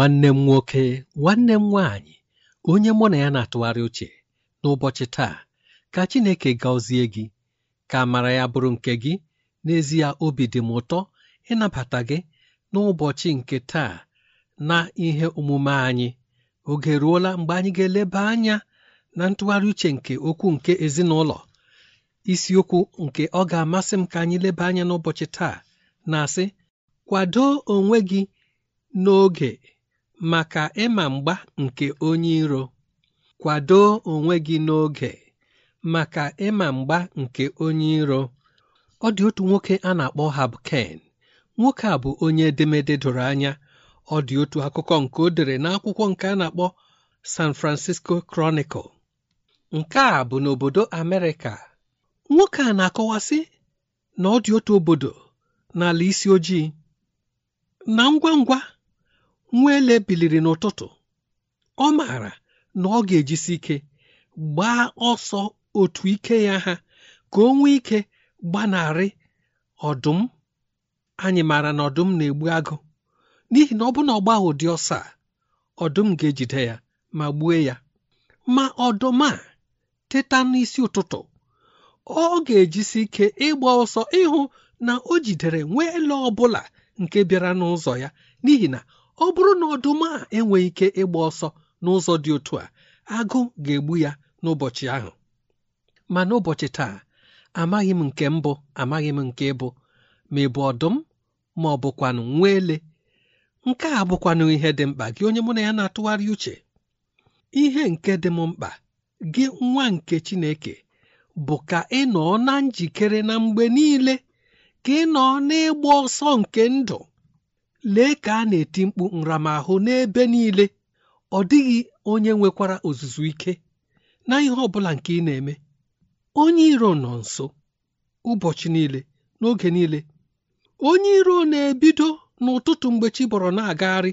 nwanne m nwoke nwanne m nwaanyị onye mụ na ya na-atụgharị uche n'ụbọchị taa ka Chineke gazie gị ka amara ya bụrụ nke gị n'ezie obi dị m ụtọ ịnabata gị n'ụbọchị nke taa na ihe omume anyị oge ruola mgbe anyị ga-eleba anya na ntụgharị uche nke okwu nke ezinụlọ isiokwu nke ọ ga-amasị m ka anyị leba anya n'ụbọchị taa na-asị kwado onwe gị n'oge maka ịma mgba nke onye iro kwado onwe gị n'oge maka ịma mgba nke onye iro ọ dị otu nwoke a na-akpọ Habken nwoke a bụ onye edemede doro anya ọ dị otu akụkọ nke odere n'akwụkwọ nke a na-akpọ San Francisco Chronicle nke a bụ n'obodo Amerịka nwoke a na-akọwasị na ọ dị otu obodo n'ala isi ojii na ngwa ngwa nwa ele biliri n'ụtụtụ ọ maara na ọ ga-ejisi ike gbaa ọsọ otu ike ya ha ka o nwee ike gbanarị ọdụm anyị maara na ọdụm na-egbu agụ n'ihi na ọ bụrụ na ụdị ọsọ a ọdụm ga-ejide ya ma gbue ya ma ọdụm a teta n'isi ụtụtụ ọ ga-ejisi ike ịgba ọsọ ịhụ na o jidere nwa ele ọ bụla nke bịara n'ụzọ ya n'ihi na ọ bụrụ na ọdụm a enweghị ike ịgba ọsọ n'ụzọ dị otu a agụ ga-egbu ya n'ụbọchị ahụ ma n'ụbọchị taa amaghị m nke mbụ amaghị m nke ịbụ ma ị bụ ọdụm ma ọ bụkwanụ nwa ele nke a bụkwanụ ihe dị mkpa gị onye mụ na ya na-atụgharị uche ihe nke dị m mkpa gị nwa nke Chineke bụ ka ị nọ na njikere na mgbe niile ka ị nọ n'ịgba ọsọ nke ndụ lee ka a na-eti mkpu nramahụ n'ebe niile ọ dịghị onye nwekwara ozuzu ike na ihe ọ nke ị na-eme onye iro nọ nso ụbọchị niile n'oge niile onye iro na-ebido n'ụtụtụ mgbe chi bọrọ na-agagharị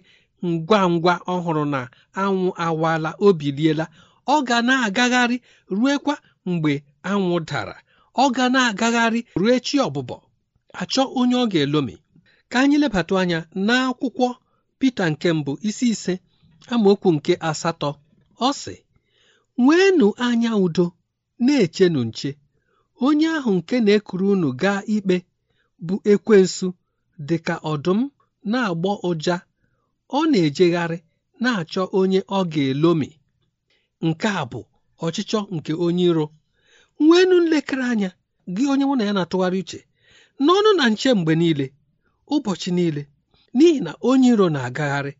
ngwa ngwa ọhụrụ na anwụ awala o biliela ọ ga na-agagharị ruekwa mgbe anwụ dara ọ ga na-agagharị rue chi ọbụbọ achọ onye ọ ga-elomi ka anyị lebata anya n'akwụkwọ Pita nke mbụ isi ise amaokwu nke asatọ ọ sị nweenụ anya udo na-echenụ nche onye ahụ nke na-ekuru unu gaa ikpe bụ ekwensu dị ka ọdụm na-agbọ ụja ọ na-ejegharị na-achọ onye ọ ga-elomi nke a bụ ọchịchọ nke onye iro nweenụ nlekere anya gị onye mụ na ya na-atụgharị uche n'ọnụ na nche mgbe niile ụbọchị niile n'ihi na onye iro na-agagharị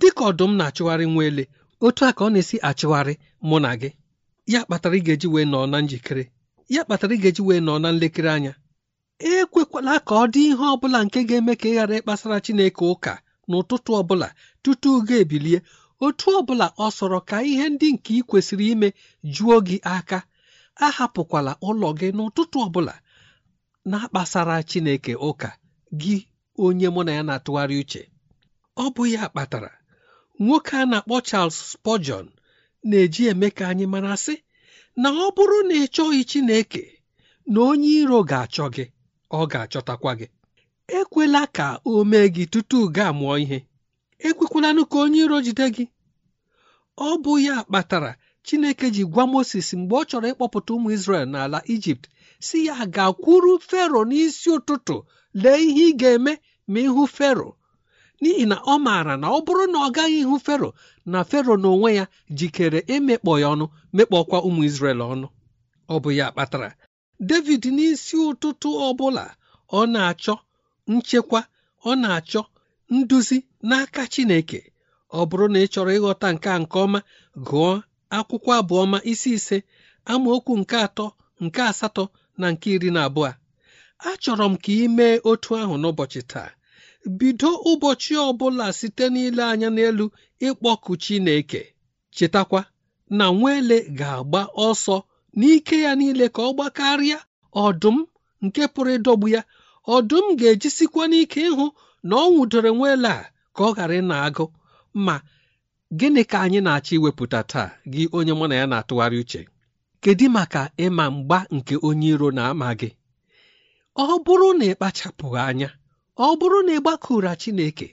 dịka ọdụm na-achụgharị nwa ele otu a ka ọ na-esi achụgharị mụ na gị ya kpatara ị ga-eji wee nọọ na njikere ya kpatara ị ga-eji wee nọọ na nlekere anya ekwekwala ka ọ dị ihe ọ bụla nke ga-eme ka ị ghara ịkpasara Chineke ụka n'ụtụtụ ọ bụla tutu ga ebilie otu ọ bụla ọ sọrọ ka ihe ndị nke ị kwesịrị ime juo gị aka ahapụkwala ụlọ gị n'ụtụtụ ọbụla na-akpasara Chineke ụka gị onye mụ na ya na-atụgharị uche ọ bụ ya kpatara nwoke a na-akpọ Charles Spurgeon na-eji eme ka anyị mara sị na ọ bụrụ na ị chọghị Chineke na onye iro ga-achọ gị ọ ga-achọtakwa gị ekwela ka o mee gị tutu gaa mụọ ihe ekwekwalanụ ka onye iro jide gị ọ bụ ya kpatara Chineke ji gwa Moses mgbe ọ chọrọ ịkpọpụta ụmụ Izrel n'ala Ijipt si ya gakwuru Fero n'isi ụtụtụ lee ihe ị ga-eme ma ihu fero n'ihi na ọ maara na ọ bụrụ na ọ gaghị ihu fero na fero n'onwe ya jikere emekpọ ya ọnụ mekpọkwa ụmụ isrel ọnụ ọ bụ ya kpatara David n'isi ụtụtụ ọ bụla ọ na-achọ nchekwa ọ na-achọ nduzi n'aka Chineke ọ bụrụ na ị chọrọ ịghọta nke a nke ọma gụọ akwụkwọ abụọma isi ise amaokwu nke atọ nke asatọ na nke iri na abụọ achọrọ m ka ị mee otu ahụ n'ụbọchị taa bido ụbọchị ọ bụla site n'ile anya n'elu ịkpọku Chineke chetakwa na nweele ga-agba ọsọ n'ike ya niile ka ọ gbakarịa ọdụm nke pụrụ ịdọgbu ya ọdụm ga-ejisikwa n'ike ịhụ na ọ nwụdoro nwaele a ka ọ ghara ịna agụ ma gịnị ka anyị na-achọ iwepụta taa gị onye mụ na ya na-atụgharị uche kedu maka ịma mgba nke onye iro na-ama gị ọ bụrụ na ị kpachapụghị anya ọ bụrụ na ị gbakụra Chineke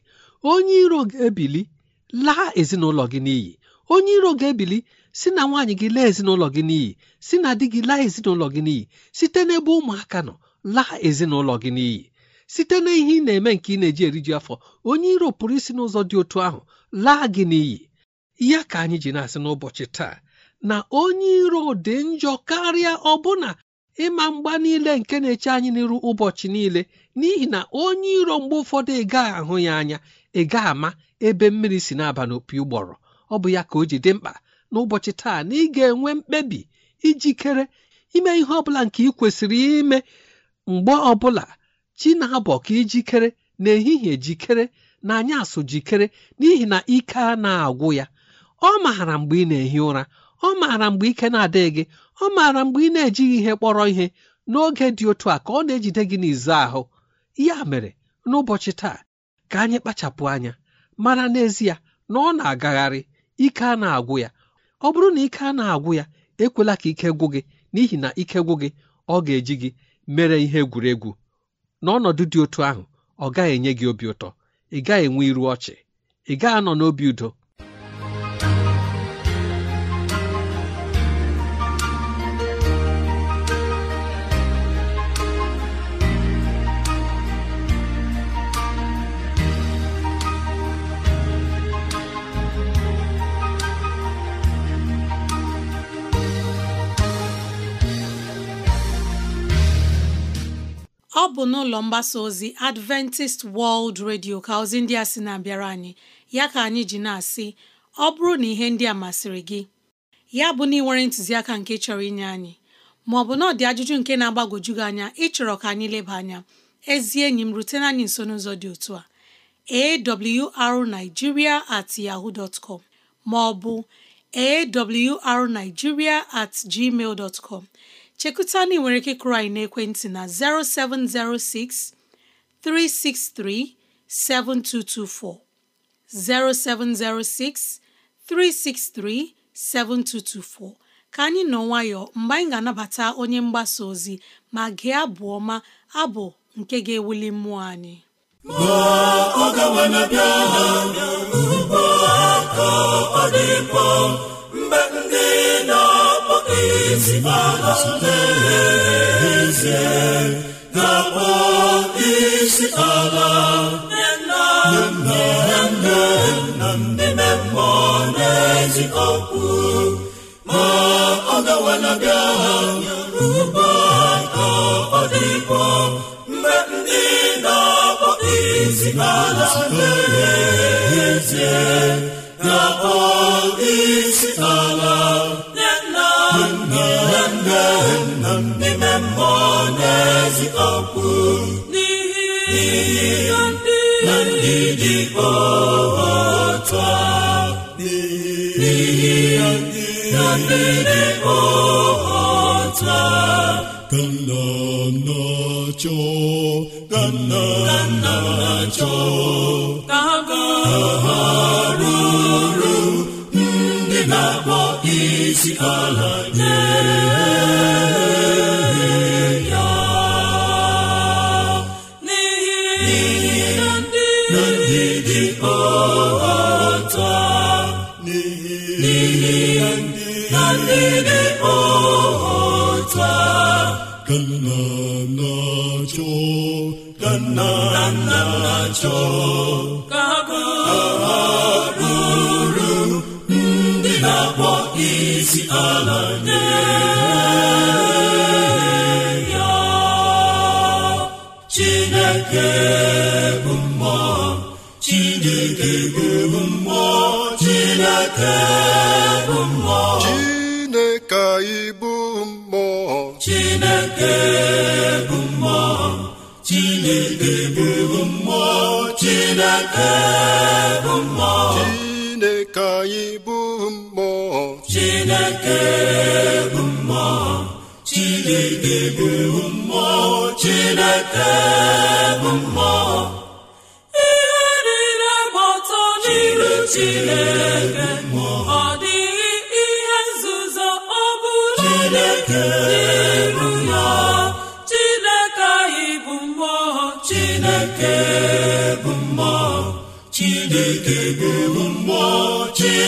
onye iro ga-ebili laa ezinụlọ gị n'iyi onye iro ga-ebili si na nwaanyị gị laa ezinụlọ gị n'iyi si na di gị laa ezinụlọ gị n'iyi site n'ebe ụmụaka nọ laa ezinụlọ gị n'iyi site na ihe ị na-eme nke ị na-eji eriju afọ onye iro pụrụ isi n'ụzọ dị otu ahụ laa gị n'iyi ya ka anyị ji na-asị n'ụbọchị taa na onye iro dị njọ karịa ọbụna ịma mgba niile nke na-eche anyị n'iru ụbọchị niile n'ihi na onye iro mgbe ụfọdụ ịgaghị ahụ ya anya ịga ama ebe mmiri si na-aba n'opi ụgbọrọ ọ bụ ya ka o ji dị mkpa n'ụbọchị taa na ị ga-enwe mkpebi ijikere ime ihe ọbụla nke ị kwesịrị ime mgbe ọbụla chi na-abọ ka ijikere na-ehihie jikere na anyasụ jikere n'ihi na ike a na-agwụ ya ọ maara mgbe ị na-ehi ụra ọ maara mgbe ike na-adịghị gị ọ maara mgbe ị na-ejighị ihe kpọrọ ihe n'oge dị otu a ka ọ na-ejide gị n'izu ahụ ya mere n'ụbọchị taa ka anyị kpachapụ anya mara n'ezie na ọ na-agagharị ike a na-agwụ ya ọ bụrụ na ike a na-agwụ ya ekwela ka ike gwụ gị n'ihi na ike gwụ gị ọ ga-eji gị mere ihe egwuregwu n'ọnọdụ dị otu ahụ ọ gaghị enye gị obi ụtọ ị gaghị enwe iru ọchị ị gaghị anọ n'obi udo bụ n'ụlọ mgbasa ozi Adventist World Radio ka ozi ndị a sị na-abịara anyị ya ka anyị ji na-asị ọ bụrụ na ihe ndị a masịrị gị ya bụ na ị nwere ntụziaka nke chọrọ inye anyị ma ọ bụ na ajụjụ nke na-agbagwoju gị anya ịchọrọ ka anyị leba anya ezi enyi m rutena anyị nso n'ụzọ dị otu a awrnigeria at yahoo dot com ma ọ bụ awrnigeria at gmail dot com chekụta na ị nwere ike kụrụ anyị n'ekwentị na 0706 363 7224 0706 363 7224 ka anyị nọ nwayọọ mgbe anyị ga-anabata onye mgbasa ozi ma gee abụ ọma abụ nke ga-ewuli mmụọ anyị ma ọ na bịa ha ugbu a ka mgbe ndị Ezigbo ala n'eze na akpọ isi ala nna nna nne nna ndị mmụọ na-ezi okwu ma ọ gawala bịa ugba ka ọ dịkwa mgbe ndị na-akpọ isi ala na-eze ga-akpọ isi ala mmiri ọhata ka nna nna ha ndị na-akpọ isi ala nye ya cho bụ mmụọ Chineke anyị bụ mmụọ Chineke bụ mmụọ Chineke bụ mmụọ Chineke bụ mmụọ ihe niile gbọtọ n'iru Chineke ọ dịghị ihe nzuzo ọ bụla Chineke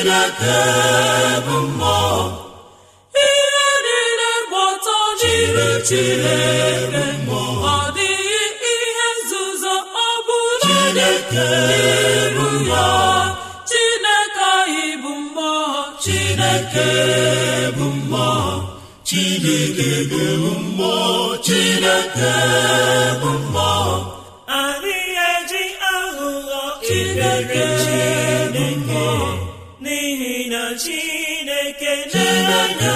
chineke bụ mmụọ ihe niile gba ọtọ chere chineke dịghị ihe nzuzo ọ bụla chineke bụ chineke anyị bụ chineke bụ bụ chineke bụ mmụọ ina Chineke na-enye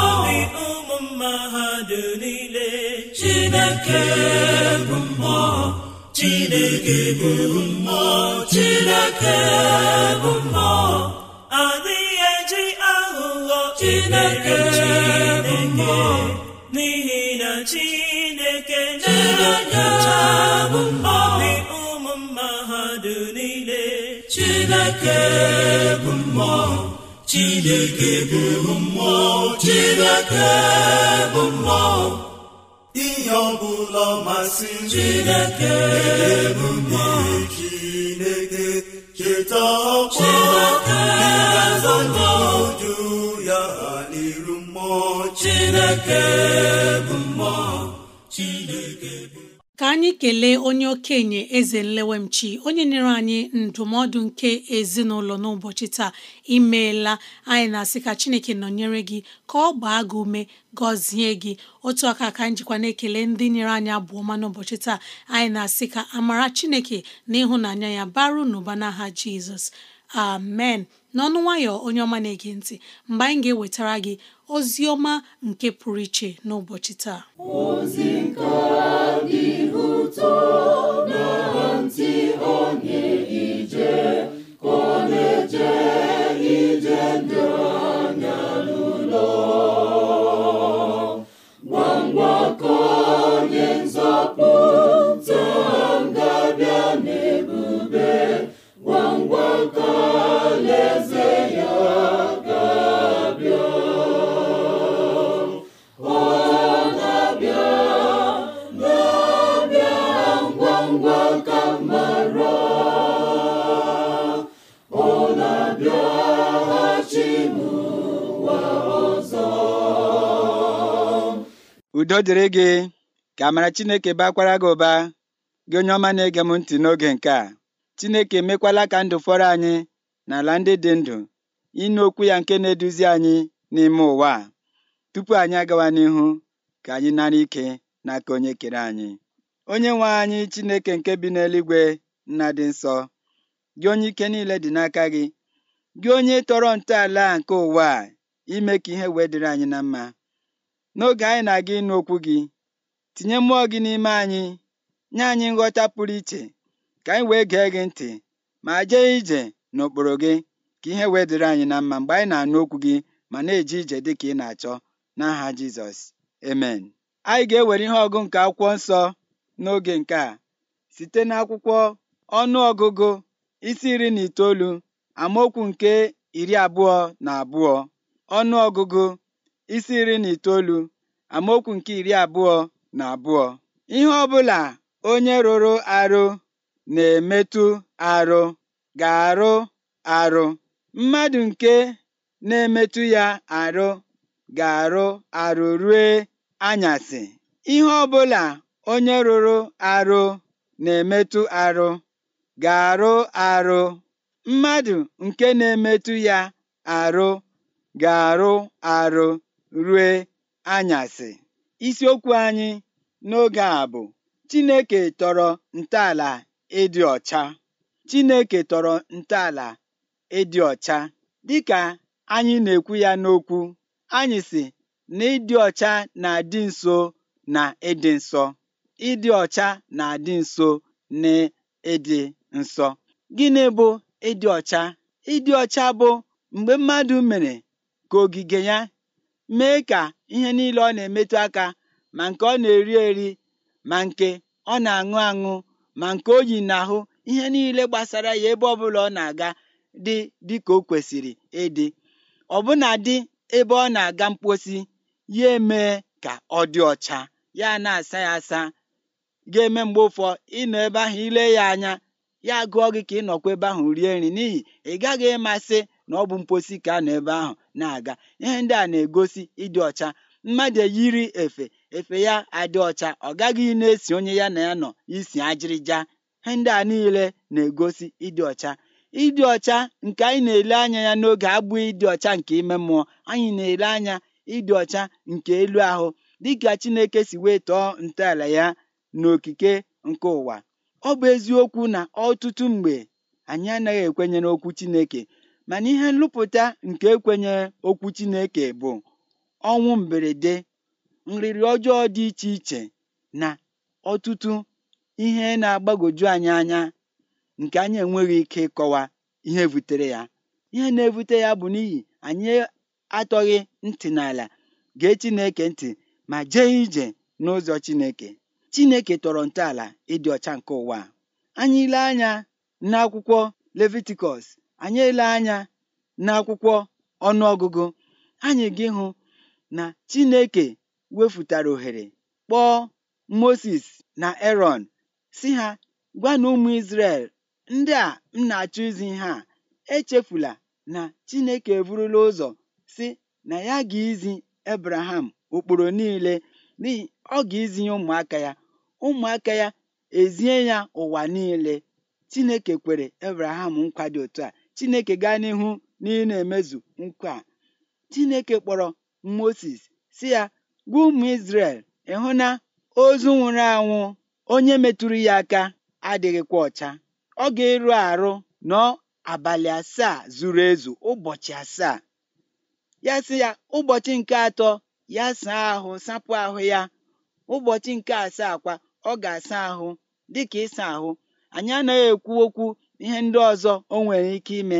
obi ụmụ mmadụ niile Chineke bụ mmụọ Chineke bụ mmụọ Chineke bụ mmụọ adịghị eji aghụghọ Chineke bụ mmụọ n'ihi na Chineke na-enye mmụọ chineke bụ mmụọ chineke bụ mmụọ chineke bụ mmụọ ihe ọbụla masị chineke bụ mmụọ chineke cheta ọkpọ ịgazọnọju ya n'iru mmụọ chineke bụ mmụọ chineke ka anyị kelee onye okenye eze nlewemchi onye nyere anyị ndụmọdụ nke ezinụlọ n'ụbọchị taa imeela anyị na-asị ka chineke nọnyere gị ka ọ gbaa gị ume gọzie gị otu aka ka njikwa na-ekele ndị nyere anyị abụọ ma n'ụbọchị taa anyị na-asị ka amara chineke na ịhụnanya ya baru n'ụba n'aha jizọs amen n'ọnụ nwayọ onye ọma na-ege ntị mgbe anyị ga-ewetara gị ozi ọma nke pụrụ iche n'ụbọchị taa ozi nke dị ụtọ na ntị onye ije ka ọ na-eje udo dịrị gị ka amara Chineke bakwara gị ụba gị onye ọma na-ege m ntị n'oge nke a Chineke emekwala ka ndụ fọrọ anyị n'ala ndị dị ndụ ịnụ okwu ya nke na-eduzi anyị n'ime ụwa a tupu anyị agawa n'ihu ka anyị nara ike n'aka onye kere anyị onye nwe anyị Chineke nke bi n'eluigwe nna dị nsọ gị onye ike niile dị n'aka gị gị onye tọrọ ntọala nke ụwa a ime ka ihe wee dịrị anyị na mma n'oge anyị na-aga ịnụ okwu gị tinye mmụọ gị n'ime anyị nye anyị nghọta pụrụ iche ka anyị wee gee gị ntị ma jee ije n'okporo gị ka ihe wee dịrị anyị na mma mgbe anyị na-anụ okwu gị ma na-eje ije dị ka ị na-achọ n'aha Jizọs emen anyị ga-ewere ihe ọgụ nke akwụkwọ nsọ n'oge nke a site n'akwụkwọ ọnụ ọgụgụ isi iri na itoolu amaokwu nke iri abụọ na abụọ ọnụ ọgụgụ isi iri na itoolu amaokwu nke iri abụọ na abụọ ihe ọbụla onye rụrụ arụ na-emetụ arụ ga-arụ arụ mmadụ nke na-emetụ ya arụ ga-arụ arụ rue anyasị ihe ọbụla onye rụrụ arụ na-emetụ arụ ga-arụ arụ mmadụ nke na-emetụ ya arụ ga-arụ arụ rue anyasị isiokwu anyị n'oge a bụ Chineke tọrọ ntọala ịdị ọcha Chineke tọrọ ntọala ịdị ọcha dịka anyị na-ekwu ya n'okwu anyị si na ịdị ọcha na-adị nso na ịdị nsọ ịdị ọcha na-adị nso na ịdị nsọ gịnị bụ ịdị ọcha ịdị ọcha bụ mgbe mmadụ mere ka ogige ya mee ka ihe niile ọ na-emetụ aka ma nke ọ na-eri eri ma nke ọ na-aṅụ aṅụ ma nke o na ahụ ihe niile gbasara ya ebe ọbụla ọ na-aga dị ka o kwesịrị kwèsìrì ịdị̄ dị ebe ọ na-aga mposi ya emee ka ọ dị ọcha ya na asa ya asa ga-eme mgbe ụfọ ị ebe ahụ ile ya anya ya gụọ gị ka ị nọkwa ebe ahụ rie nri n'ihi ị gaghị ịmasị. na ọ bụ mposi ka a nọ ebe ahụ na-aga ihe ndị a na-egosi ịdị ọcha mmadụ eyiri efe efe ya adị ọcha ọ gaghị na-esi onye ya na ya nọ isi ajịrịja ihe ndị a niile na-egosi ịdị ọcha ịdị ọcha nke anyị na-ele anya ya n'oge abụghị ịdị ọcha nke ime mmụọ anyị na-ele anya ịdị ọcha nke elu ahụ dịka Chineke si wee tọọ ntọala ya n'okike nke ụwa ọ bụ eziokwu na ọtụtụ mgbe anyị anaghị ekwenye n'okwu Chineke mana ihe nlụpụta nke ekwenyere okwu Chineke bụ ọnwụ mberede nriri ọjọọ dị iche iche na ọtụtụ ihe na-agbagoju anyị anya nke anyị enweghị ike ịkọwa ihe butere ya ihe na-ebute ya bụ n'ihi anyị atọghị ntị n'ala gee Chineke ntị ma jee ije n'ụzọ Chineke Chineke tọrọ ntọala ịdị ọcha nke ụwa anyị ile anya n'akwụkwọ Levitikọs anyị ele anya n'akwụkwọ ọnụọgụgụ anyị gị hụ na Chineke wefụtara ohere kpọọ Moses na Aaron si ha gwa na ụmụ ndị a m na-achọ izi ha echefula na Chineke eburula ụzọ si na ya ga-izi Abraham ụkpụrụ niile n'ihi ọ ga-izi ya ụmụaka ya ụmụaka ya ezie ya ụwa niile Chineke kwere Abraham nkwa dị otu a chineke gaa n'ihu na ị na-emezu nkwa chineke kpọrọ moses si ya gwa ụmụ israel ịhụ na ozu nwụrụ anwụ onye metụrụ ya aka adịghịkwa ọcha ọ ga-eru arụ nọ abalị asaa zuru ezu ụbọchị asaa ya sị ya ụbọchị nke atọ ya saa ahụ sapụ ahụ ya ụbọchị nke asaa kwa ọ ga-asa ahụ dịka ịsa ahụ anyị anaghị ekwu okwu ihe ndị ọzọ o nwere ike ime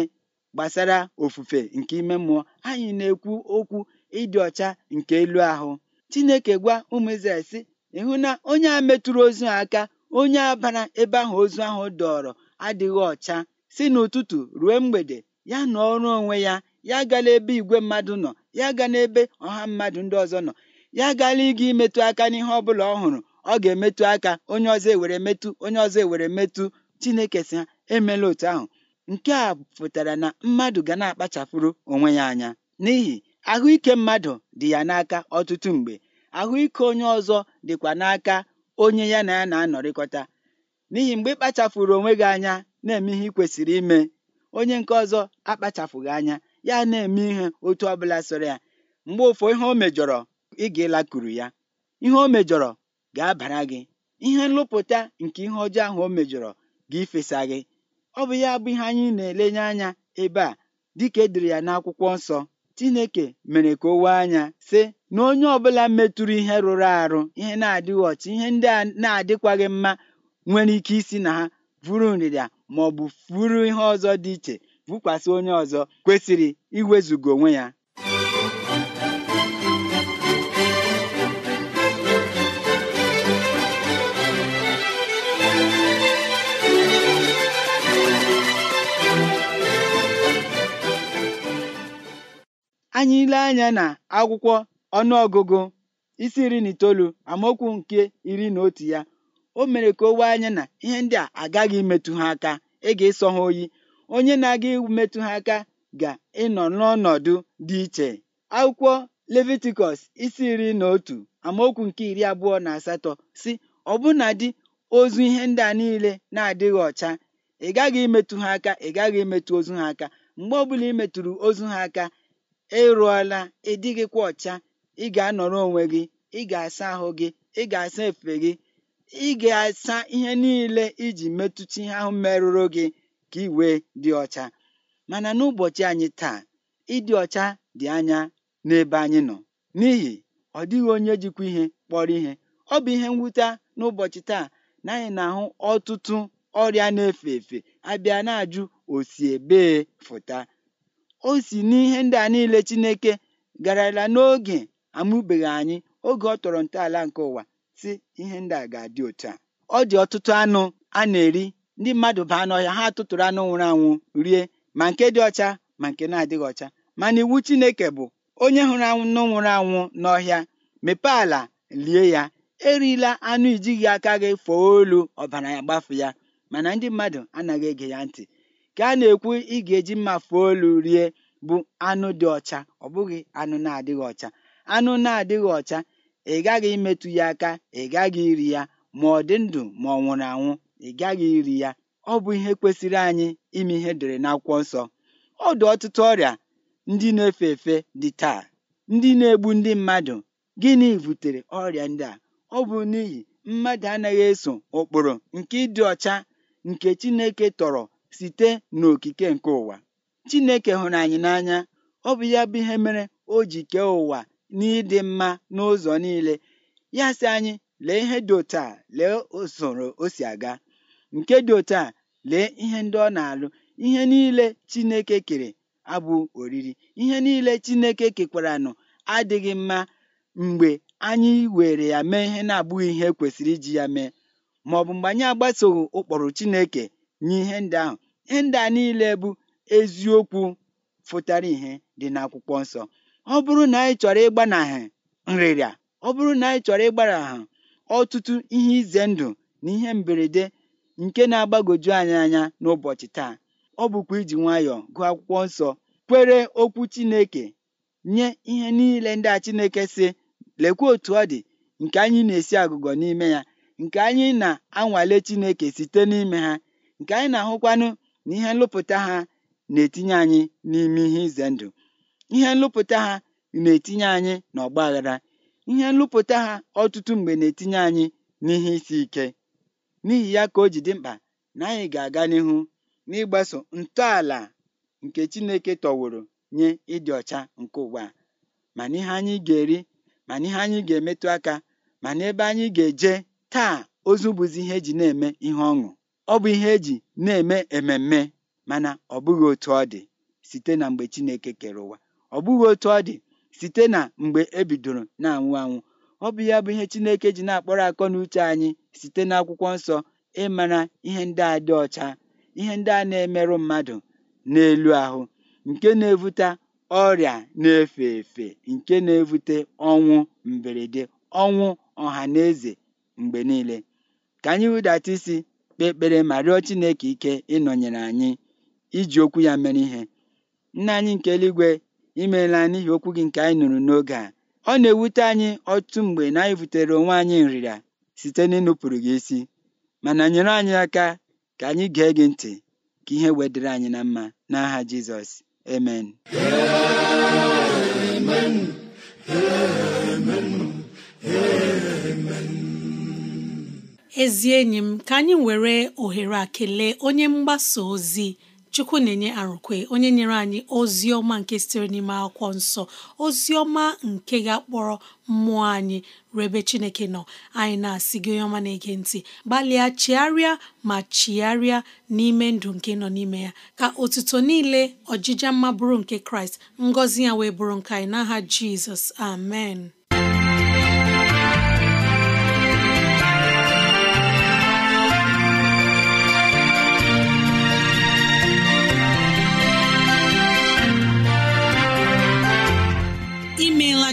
gbasara ofufe nke ime mmụọ anyị na-ekwu okwu ịdị ọcha nke elu ahụ Chineke gwa ụmụ Izrel sị ịhụ na onye a metụrụ ozu aka onye abara ebe ahụ ozu ahụ dọọrọ adịghị ọcha si n'ụtụtụ ruo mgbede ya na ọrụ onwe ya ya gala ebe igwe mmadụ nọ ya ga n'ebe ọha mmadụ ndị ọzọ nọ ya gala ịga imetụ aka n'ihe ọ bụla ọ hụrụ ọ ga-emetụ aka onye ọzọ ewere metụ onye ọzọ ewere metụ Chineke sị ha emela otu ahụ nke a pụtara na mmadụ ga na-akpachapụrụ onwe ya anya n'ihi ahụike mmadụ dị ya n'aka ọtụtụ mgbe ahụike onye ọzọ dịkwa n'aka onye ya na ya na-anọrịkọta n'ihi mgbe ị onwe gị anya na-eme ihe ị kwesịrị ime onye nke ọzọ akpachapụghị anya ya na-eme ihe otu ọbụla soro ya mgbe ụfọ ihe o mejọrọ ị ga-elakuru ya ihe o mejọrọ ga-abara gị ihe nlụpụta nke ihe ọjọọ ahụ o mejọrọ ga-ifesa gị ọ bụ ya bụ ihe anyị na-elenye anya ebe a dịka edere ya n'akwụkwọ nsọ Chineke mere ka o wee anya sị na onye ọbụla metụrụ ihe rụrụ arụ ihe na-adịghị ọcha ihe ndị a na-adịkwaghị mma nwere ike isi na ha vụrụ nrịrịa ma ọ bụ furu ihe ọzọ dị iche vụkwasị onye ọzọ kwesịrị iwezugo onwe ya anyị ile anya na akwụkwọ ọnụọgụgụ isi iri na itoolu amaokwu nke iri na otu ya o mere ka o wee anya na ihe ndị a agaghị imetụ ha aka ị e ga-ịsọ ha oyi onye na-aga metụ ha aka ga-ịnọ n'ọnọdụ dị iche akwụkwọ levitikọs isi iri na otu amaokwu nke iri abụọ na asatọ si ọbụna dị ozu ihe ndị a niile na-adịghị ọcha ị gaghị imetụ ha aka ị gaghị imetụ ozu ha aka mgbe ọbụla ị metụrụ ozu ha aka ị e rụọla e ọcha ị ga-anọrọ onwe gị ị ga-asa ahụ gị ị ga-asa efe gị ị ga-asa ihe niile iji metụta ihe ahụ merụrụ gị ka ị wee dị ọcha mana n'ụbọchị anyị taa ịdị ọcha dị anya n'ebe anyị nọ n'ihi ọ dịghị onye jikwa ihe kpọrọ ihe ọ bụ ihe mwute n'ụbọchị taa na anyị na-ahụ ọtụtụ ọrịa na-efe efe abịa na-ajụ o ebee fụta o si n'ihe ndị a niile Chineke garala n'oge amụbeghị anyị oge ọ tọrọ ntọala nke ụwa si ihe ndị a ga-adị otu a ọ dị ọtụtụ anụ a na-eri ndị mmadụ baa n'ọhịa ha tụtụrụ anụ nwụrụ anwụ rie ma nke dị ọcha ma nke na-adịghị ọcha mana iwu Chineke bụ onye hụrụ anụ nwụrụ anwụ n'ọhịa mepee ala lie ya erila anụ ijighị aka gị fọọ olu ọbara ya gbafu ya mana ndị mmadụ anaghị ege ya ntị ka a na-ekwu ị ga-eji mma fee olu rie bụ anụ dị ọcha ọ bụghị anụ na-adịghị ọcha anụ na-adịghị ọcha ị gaghị imetụ ya aka ị gaghị iri ya ma ọ dị ndụ ma ọ nwụrụ anwụ ị gaghị iri ya ọ bụ ihe kwesịrị anyị ime ihe na akwụkwọ nsọ ọ dị ọtụtụ ọrịa ndị na-efe efe dị taa ndị na-egbu ndị mmadụ gịnị butere ọrịa ndị a ọ bụ n'ihi mmadụ anaghị eso ụkpụrụ nke ịdị ọcha nke Chineke tọrọ site n'okike nke ụwa chineke hụrụ anyị n'anya ọ bụ ya bụ ihe mere o ji kee ụwa n'ịdị mma n'ụzọ niile ya sị anyị lee ihe dị otu a lee usoro o si aga nke dị otu a lee ihe ndị ọ na-alụ ihe niile chineke kere abụ oriri ihe niile chineke kekwaranụ adịghị mma mgbe anyị were ya mee ihe na-abụghị ihe e kwesịrị iji ya mee ma ọ bụ mgbe anyị agbasoghị ụkpụrụ chineke nye ihe ndị ahụ ndị a niile bụ eziokwu fụtara ihe dị n'akwụkwọ nsọ ọ bụrụ na anyị chọrọ ịgbanahụ nrịrịa ọ bụrụ na anyị chọrọ ịgbanahụ ọtụtụ ihe ize ndụ na ihe mberede nke na-agbagoju anyị anya n'ụbọchị taa ọ bụkwa iji nwayọọ gụọ akwụkwọ nsọ kwere okwu Chineke nye ihe niile ndị a Chineke sị lekwa otu ọ dị nke anyị na-esi agụgọ n'ime ya nke anyị na-anwale Chineke site n'ime ha nke anyị na-ahụkwanụ na ihe nlụpụta ha na-etinye anyị n'ime ihe ize ndụ ihe nlụpụta ha na-etinye anyị n'ọgba aghara ihe nlụpụta ha ọtụtụ mgbe na-etinye anyị n'ihe isi ike n'ihi ya ka o ji dị mkpa na anyị ga-aga n'ihu n'ịgbaso ntọala nke Chineke tọworo nye ịdị ọcha nke ụwa ma n'ihe anyị ga-eri ma n'ihe anyị ga-emetụ aka ma n'ebe anyị ga-eje taa ozu bụzi ihe eji na-eme ihe ọṅụ ọ bụ ihe eji na-eme ememme mana ọ bụghị otu ọ dị site na mgbe Chineke kere ụwa ọ bụghị otu ọ dị site na mgbe e bidoro na-anwụ anwụ ọ bụ ya bụ ihe Chineke ji na-akpọrọ akọ na uche anyị site n'akwụkwọ nsọ ịmara ihe ndị a dị ọcha ihe ndị a na-emerụ mmadụ n'elu ahụ nke na-evute ọrịa na-efe efe nke na-evute ọnwụ mberede ọnwụ ọha na eze mgbe niile ka anyị hụdata isi kpee ekpere ma rịọ Chineke ike ịnọnyere anyị iji okwu ya mere ihe nna anyị nke eluigwe imeela n'ihi okwu gị nke anyị nụrụ n'oge a ọ na-ewute anyị ọtụtụ mgbe na anyị butere onwe anyị nrịrịa site n'ịnụpụrụ gị isi mana nyere anyị aka ka anyị gee gị ntị ka ihe wedịrị anyị na mma n'aha Jizọs amen ezi enyi m ka anyị were ohere a kelee onye mgbasa ozi chukwu na-enye arụkwe onye nyere anyị ozi ọma nke sitere n'ime akwụkwọ nsọ ozi ọma nke ga-akpọrọ mmụọ anyị rebe chineke nọ anyị na-asị gị onye ọma na-ege ntị gbalịa chigharịa ma chigharịa n'ime ndụ nke nọ n'ime ya ka otuto niile ọjịja mma bụrụ nke kraịst ngọzi ya wee bụrụ nke anyị n'aha jizọs amen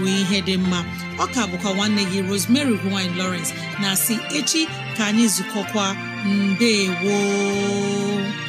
wee ihe dị mma ọka bụkwa nwanne gị Rosemary gine Lawrence na si echi ka anyị zukọkwa mbe gboo